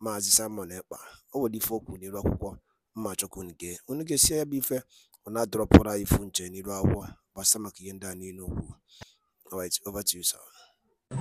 Maazị Simon Ekpa o nwere ife o kwuru n'iru akwụkwọ mma chọkwu unu gee unu gesie ya bụ ife ọ na-adọrọpụrụ ifu nche n'iru akwụkwọ gbasa maka ihe ndị a niile okwu Alright, over to you, sir.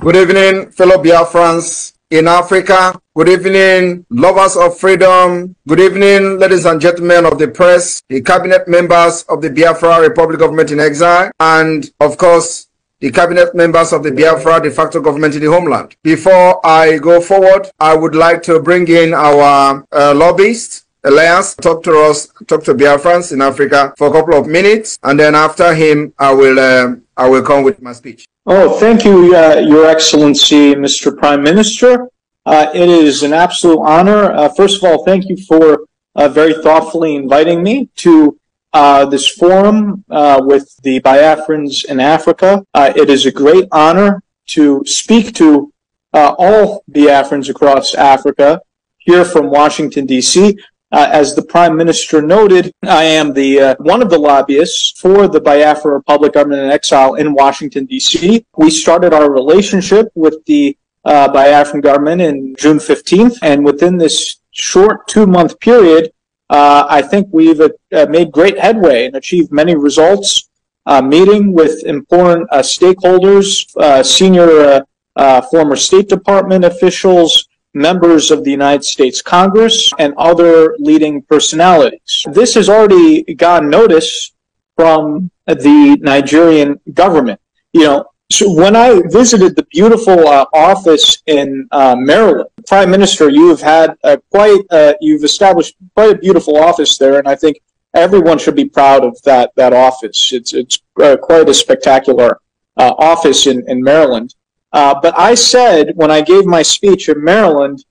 Good evening, fellow Biafrans in Africa. Good evening, lovers of freedom. Good evening, ladies and gentlemen of the press, the cabinet members of the Biafra Republic Government in Exile, and of course, the cabinet members of the Biafra de facto government in the homeland. Before I go forward, I would like to bring in our uh, lobbyist, Elias talk to us, talk to Biafrans in Africa for a couple of minutes, and then after him, I will um, I will come with my speech. Oh, thank you, uh, Your Excellency, Mr. Prime Minister. Uh, it is an absolute honor. Uh, first of all, thank you for uh, very thoughtfully inviting me to uh, this forum uh, with the Biafrans in Africa. Uh, it is a great honor to speak to uh, all Biafrans across Africa here from Washington, D.C. Uh, as the Prime Minister noted, I am the one of the lobbyists for the Biafra Republic Government in Exile in Washington, D.C. We started our relationship with the Biafran government in June 15th, and within this short two-month period, uh, I think we've uh, made great headway and achieved many results. Uh, meeting with important uh, stakeholders, uh, senior uh, former State Department officials, members of the United States Congress, and other leading personalities. This has already gotten notice from the Nigerian government. You know, so when I visited the beautiful uh, office in uh, Maryland, Prime Minister, you have had a quite uh, you've established quite a beautiful office there, and I think everyone should be proud of that that office. It's it's uh, quite a spectacular uh, office in in Maryland. Uh, but I said when I gave my speech in Maryland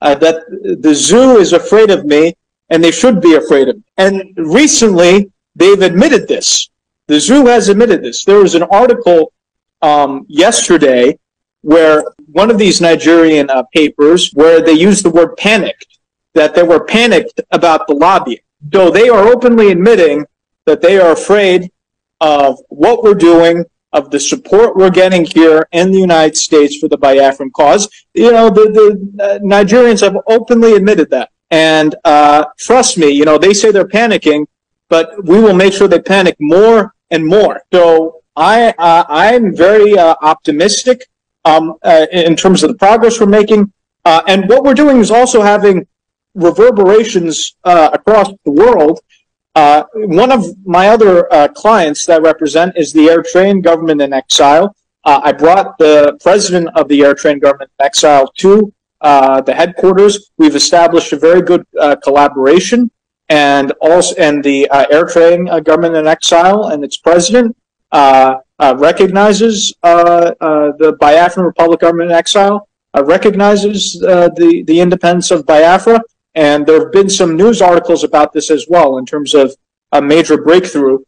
that the zoo is afraid of me, and they should be afraid of me. And recently, they've admitted this. The zoo has admitted this. There was an article um, yesterday where one of these Nigerian uh, papers where they used the word panicked, that they were panicked about the lobbying. Though they are openly admitting that they are afraid of what we're doing, of the support we're getting here in the United States for the Biafran cause. You know, the, the uh, Nigerians have openly admitted that. And uh, trust me, you know, they say they're panicking, but we will make sure they panic more and more. So I uh, I'm very uh, optimistic um, uh, in terms of the progress we're making, uh, and what we're doing is also having reverberations uh, across the world. Uh, one of my other clients that I represent is the Eritrean government in exile. I brought the president of the Eritrean government in exile to the headquarters. We've established a very good collaboration, and also and the Eritrean government in exile and its president uh, uh, recognizes uh, the Biafran Republic government in exile, recognizes the, the independence of Biafra, and there have been some news articles about this as well in terms of a major breakthrough,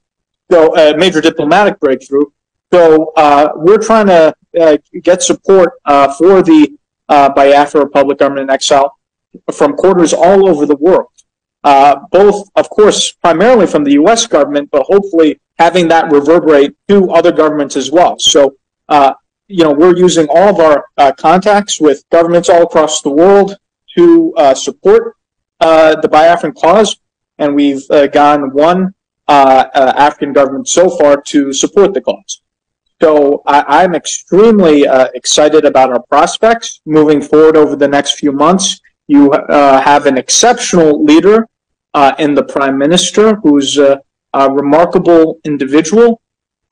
so a major diplomatic breakthrough. So uh, we're trying to uh, get support uh, for the Biafra Republic government in exile from quarters all over the world uh, both, of course, primarily from the U.S. government, but hopefully having that reverberate to other governments as well. So, uh, you know, we're using all of our uh, contacts with governments all across the world to uh, support uh, the Biafran cause, and we've uh, gone one African government so far to support the cause. So I, am extremely excited about our prospects moving forward over the next few months. You uh, have an exceptional leader uh, and the prime minister, who's a, a remarkable individual.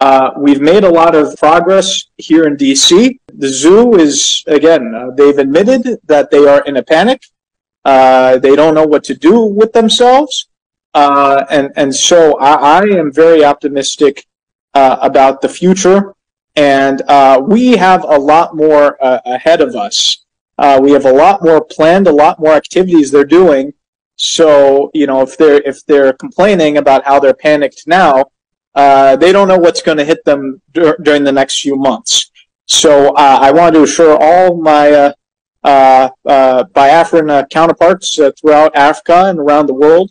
Uh, we've made a lot of progress here in DC. The zoo is, again, uh, they've admitted that they are in a panic. they don't know what to do with themselves. and, and so I, I am very optimistic about the future and uh, we have a lot more uh, ahead of us. Uh, we have a lot more planned, a lot more activities they're doing so you know, if they're if they're complaining about how they're panicked now, uh, they don't know what's going to hit them dur- during the next few months. So uh, I want to assure all my uh, uh, uh Biafran uh, counterparts throughout Africa and around the world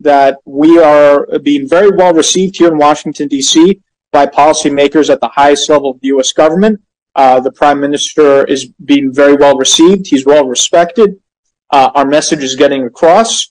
that we are being very well received here in Washington D.C. by policymakers at the highest level of the U.S. government. the prime minister is being very well received. He's well respected uh, our message is getting across.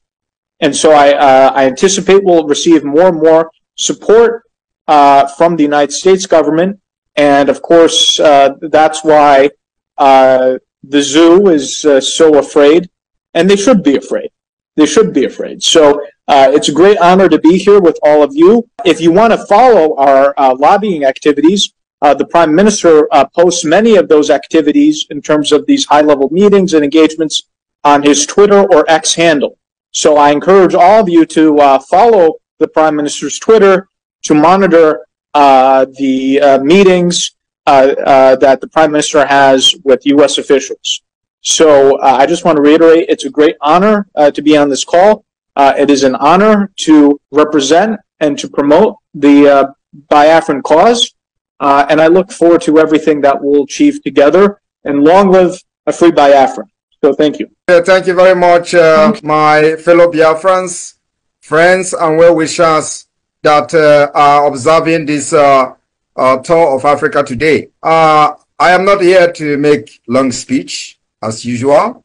And so I, uh, I anticipate we'll receive more and more support uh, from the United States government. And of course, uh, that's why uh, the zoo is uh, so afraid, and they should be afraid. They should be afraid. So it's a great honor to be here with all of you. If you want to follow our lobbying activities, uh, the prime minister uh, posts many of those activities in terms of these high level meetings and engagements on his Twitter or X handle. So I encourage all of you to uh, follow the Prime Minister's Twitter to monitor uh, the uh, meetings uh, uh, that the Prime Minister has with U.S. officials. So uh, I just want to reiterate it's a great honor to be on this call. it is an honor to represent and to promote the Biafran cause. and I look forward to everything that we'll achieve together. And long live a free Biafran. So thank you. Yeah, thank you very much, uh, you. my fellow Biafrans, friends, and well wishers that uh, are observing this uh, uh tour of Africa today. Uh, I am not here to make long speech as usual.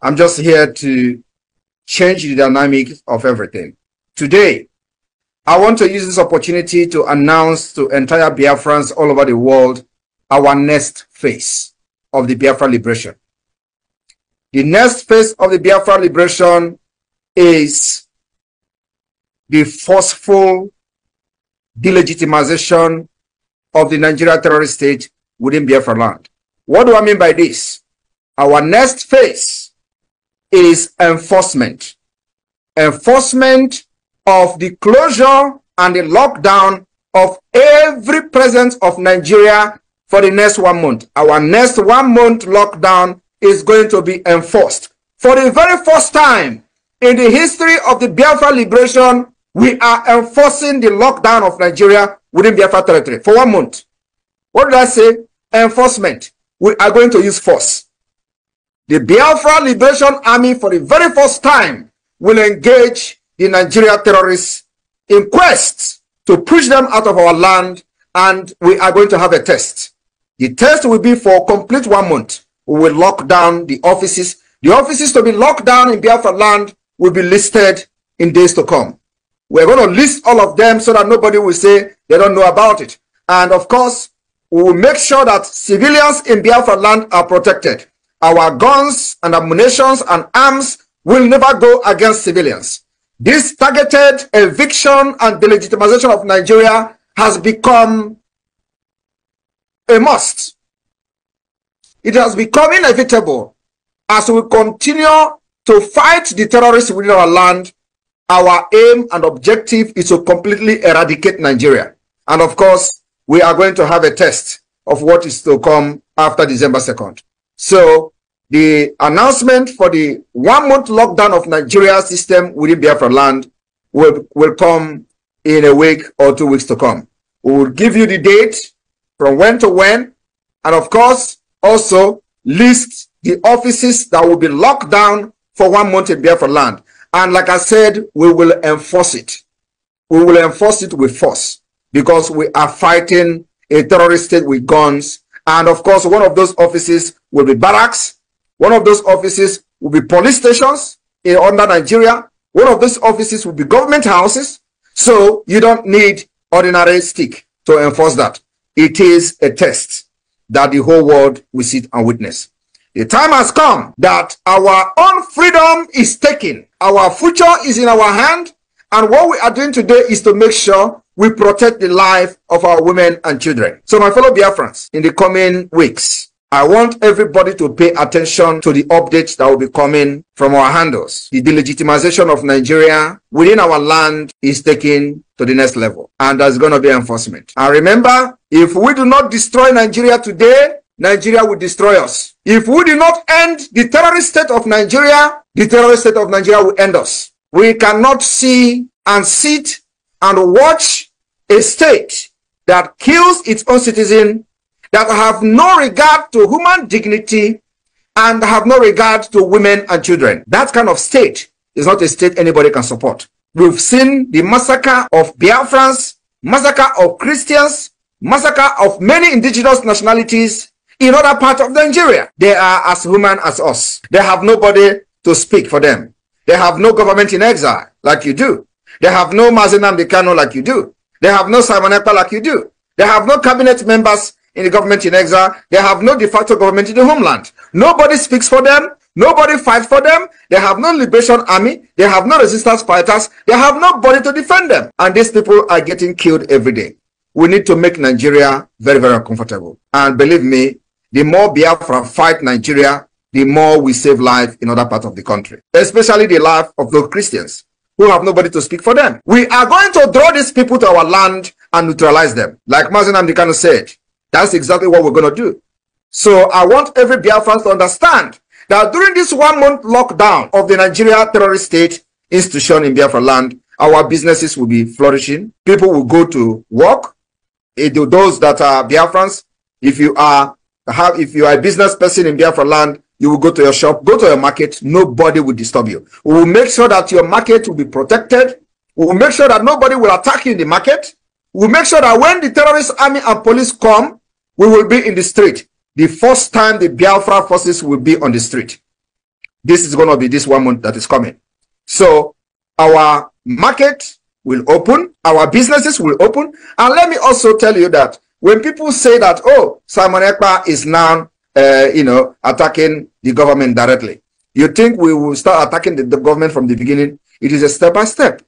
I'm just here to change the dynamics of everything. Today, I want to use this opportunity to announce to entire Biafrans all over the world our next phase of the Biafra liberation. The next phase of the Biafra liberation is the forceful delegitimization of the Nigeria terrorist state within Biafra land. What do I mean by this? Our next phase is enforcement. Enforcement of the closure and the lockdown of every presence of Nigeria for the next one month. Our next one month lockdown is going to be enforced. For the very first time in the history of the Biafra liberation, we are enforcing the lockdown of Nigeria within Biafra territory for one month. What did I say? Enforcement. We are going to use force. The Biafra Liberation Army, for the very first time, will engage the Nigeria terrorists in quest to push them out of our land, and we are going to have a test. The test will be for complete one month. We will lock down the offices. The offices to be locked down in Biafra land will be listed in days to come. We're going to list all of them so that nobody will say they don't know about it. And of course, we will make sure that civilians in Biafra land are protected. Our guns and ammunitions and arms will never go against civilians. This targeted eviction and delegitimization of Nigeria has become a must. It has become inevitable as we continue to fight the terrorists within our land. Our aim and objective is to completely eradicate Nigeria. And of course, we are going to have a test of what is to come after December 2nd. So the announcement for the one month lockdown of Nigeria system within Biafra land will, will come in a week or two weeks to come. We will give you the date from when to when. And of course, also lists the offices that will be locked down for one month in Biafra land. And like I said, we will enforce it. We will enforce it with force because we are fighting a terrorist state with guns. And of course, one of those offices will be barracks. One of those offices will be police stations in, under Nigeria. One of those offices will be government houses. So you don't need ordinary stick to enforce that. It is a test that the whole world will sit and witness. The time has come that our own freedom is taken. Our future is in our hand. And what we are doing today is to make sure we protect the life of our women and children. So my fellow Biafrans, in the coming weeks, I want everybody to pay attention to the updates that will be coming from our handles. The delegitimization of Nigeria within our land is taken to the next level. And there's going to be enforcement. And remember, if we do not destroy Nigeria today, Nigeria will destroy us. If we do not end the terrorist state of Nigeria, the terrorist state of Nigeria will end us. We cannot see and sit and watch a state that kills its own citizen, that have no regard to human dignity, and have no regard to women and children. That kind of state is not a state anybody can support. We've seen the massacre of Biafrans, massacre of Christians, massacre of many indigenous nationalities in other parts of Nigeria. They are as human as us. They have nobody to speak for them. They have no government in exile like you do. They have no Mazenam Bikano like you do. They have no Simon like you do. They have no cabinet members in the government in exile. They have no de facto government in the homeland. Nobody speaks for them. Nobody fights for them. They have no liberation army. They have no resistance fighters. They have nobody to defend them. And these people are getting killed every day. We need to make Nigeria very, very uncomfortable. And believe me, the more Biafra fight Nigeria, the more we save life in other parts of the country, especially the life of those Christians who have nobody to speak for them. We are going to draw these people to our land and neutralize them. Like Mazen Amdekano said, that's exactly what we're going to do. So I want every Biafran to understand that during this one-month lockdown of the Nigeria terrorist state institution in Biafra land, our businesses will be flourishing. People will go to work. Eh, those that are Biafrans, if you are have if you are a business person in Biafra land, you will go to your shop, go to your market, nobody will disturb you. We will make sure that your market will be protected. We will make sure that nobody will attack you in the market. We will make sure that when the terrorist army and police come, we will be in the street. The first time the Biafra forces will be on the street. This is going to be this one month that is coming. So our market, will open, our businesses will open. And let me also tell you that when people say that, oh, Simon Ekpa is now, uh, you know, attacking the government directly, you think we will start attacking the, the government from the beginning? It is a step by step.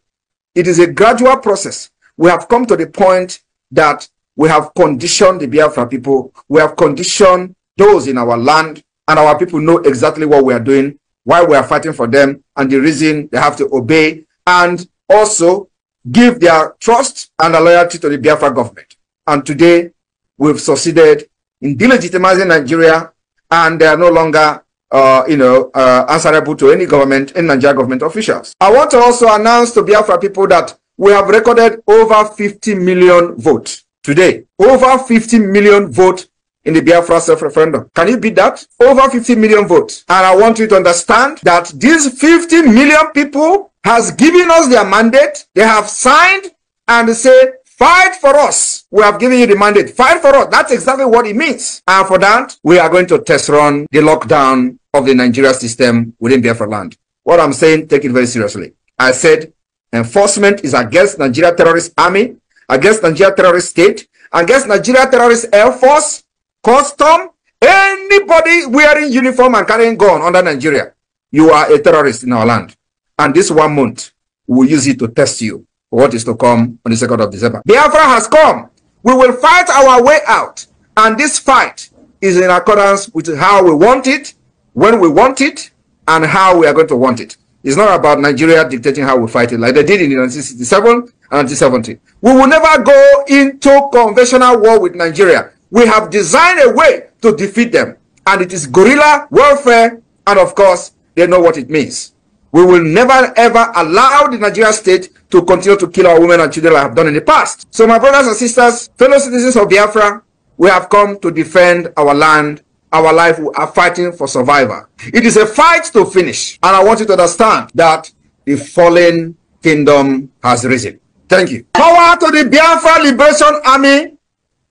It is a gradual process. We have come to the point that we have conditioned the Biafra people. We have conditioned those in our land and our people know exactly what we are doing, why we are fighting for them and the reason they have to obey. And also give their trust and their loyalty to the Biafra government. And today, we've succeeded in delegitimizing Nigeria, and they are no longer, uh, you know, uh, answerable to any government, any Nigerian government officials. I want to also announce to Biafra people that we have recorded over 50 million votes today. Over 50 million votes in the Biafra self-referendum. Can you beat that? Over 50 million votes. And I want you to understand that these 50 million people has given us their mandate. They have signed and say, fight for us. We have given you the mandate. Fight for us. That's exactly what it means. And for that, we are going to test run the lockdown of the Nigeria system within Biafra land. What I'm saying, take it very seriously. I said enforcement is against Nigeria terrorist army, against Nigeria terrorist state, against Nigeria terrorist air force, custom, anybody wearing uniform and carrying gun under Nigeria. You are a terrorist in our land and this one month we will use it to test you what is to come on the 2nd of December. Biafra has come. We will fight our way out. And this fight is in accordance with how we want it, when we want it, and how we are going to want it. It's not about Nigeria dictating how we fight it like they did in 1967 and 1970. We will never go into conventional war with Nigeria. We have designed a way to defeat them. And it is guerrilla warfare. And of course, they know what it means. We will never ever allow the Nigeria state to continue to kill our women and children like I have done in the past. So my brothers and sisters, fellow citizens of Biafra, we have come to defend our land, our life. We are fighting for survival. It is a fight to finish. And I want you to understand that the fallen kingdom has risen. Thank you. Power to the Biafra Liberation Army.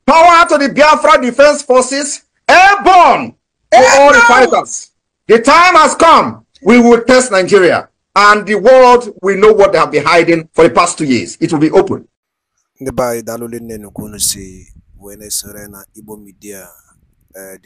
Power to the Biafra Defense Forces. Airborne to all the fighters. The time has come We will test Nigeria and the world will know what they have been hiding for the past two years. It will be open. Ndị be Media eh,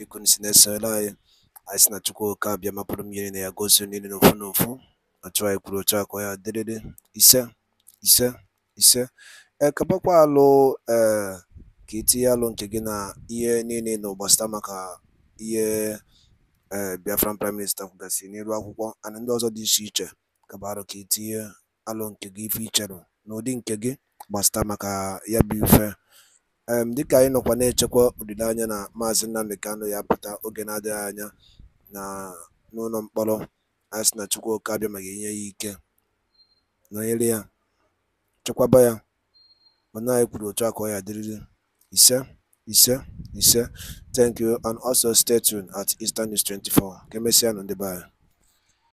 ee eh, Biafran Prime Minista kwugasịrị n'elu akwụkwọ and ndị ọzọ dị iche iche kabarụ ka itinye e alụ nke gị ife icherụ n'ụdị nke gị gbasata maka ya bụ ife dịka anyị nọkwa na-echekwa olileanya na maazị Nnamdi kanụ ya pụta oge na-adịghị anya na n'ụlọ mkpọrọ asị na chukwu abịa ma ga-enye ya ike nọnyere ya chekwaba ya mana anyị kwuru otu a ka ọ ya dịrịrị ise Ise, sir, Thank you. And also stay tuned at Eastern News 24. on the bar.